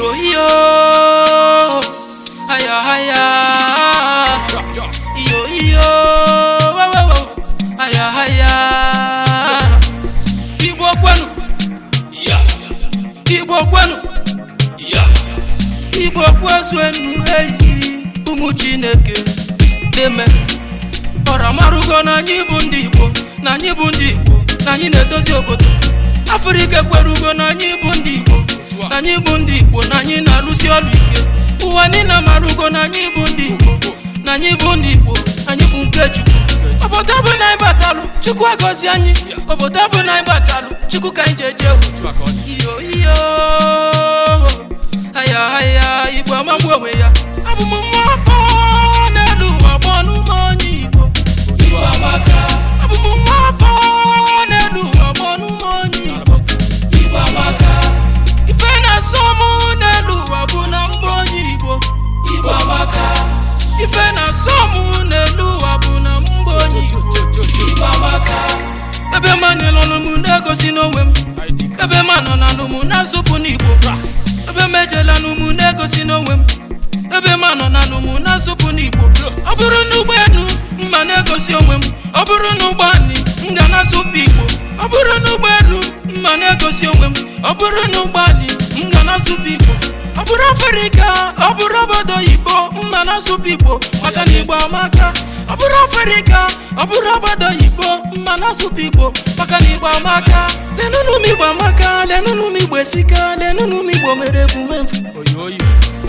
yo yo haya haya yo yo haya haya igbo kwenu ya igbo kwenu ya igbo kwezuenu eyi ụmụ chineke deme ọra marụgo na anyị bụ ndị igbo na anyị bụ ndị igbo na anyị na-edozi obodo afrịka ekwerugo na anyị bụ ndị igbo anyị bụ ndị Igbo na anyị na alụsị ọrụ ike ụwa niile mara ugo na anyị bụ ndị Igbo na anyị bụ ndị Igbo anyị bụ nke Chukwu obodo bụ na anyị batalụ Chukwu agọzi anyị obodo bụ na anyị batalụ Chukwu ka anyị ji eje ewu nọ na n'ụmụ na-azụpụ n'igbo ebe m ejela n'ụmụ na-egosi n'onwe m ebe m anọ na n'ụmụ na-azụpụ n'igbo bra ọ bụrụ na ụgbọelu mma na-egosi onwe m ọ bụrụ na ụgbọ anyị m ga na-azụpụ igbo ọ bụrụ na ụgbọelu mma na-egosi onwe m ọ bụrụ na ụgbọ anyị m ga na-azụpụ igbo ọ bụrụ afrịka ọ bụrụ obodo oyibo mma na-azụpụ igbo maka na igbo amaka ọ bụrụ afrịka ọ bụrụ obodo oyibo ma na-asụpụ igbo maka na igbo amaka lenụnụ m igbo amaka lenụnụ m igbo esika lenụnụ m igbo mere ebume mfu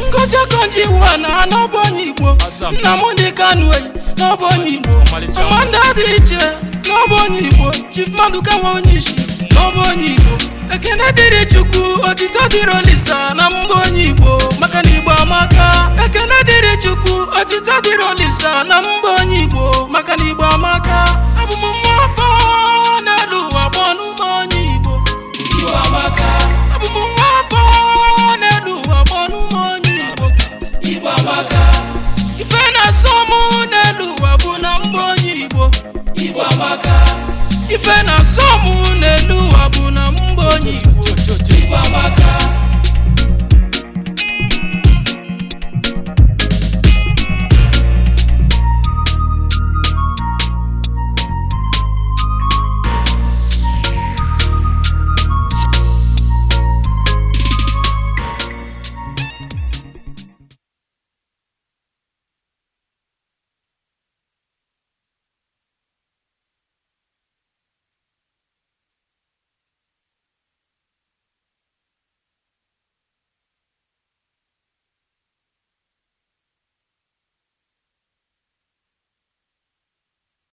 ngozi okonji iwu na n'ọbụ onye igbo nna m ndị kanu oyi n'ọbụ onye igbo amanda dị iche n'ọbụ onye igbo chief maduka nwa onye isi n'ọbụ onye igbo ekene dịrị chukwu otito dịrị olisa na mgbe onye igbo maka ọmụ n'elu ụwa bụ na mgbe onye Igbo ife na asọmụ.